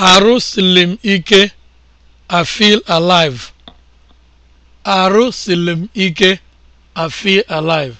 Arụsiri m ike, I feel alive. Arụsiri m ike, I feel alive.